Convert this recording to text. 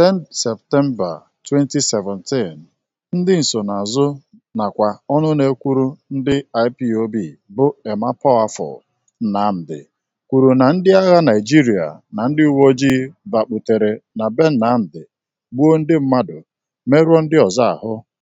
10 Septemba 2017, ndị nsonaazụ nakwa ọnụ na-ekwuru ndị IPOB bụ Emma Poafor Nnamdi kwuru na ndị agha Naịjirịa na ndị uweojii bakputere na be nnamdi gbuo ndị mmadụ, merụọ ndị ọzọ ahụ.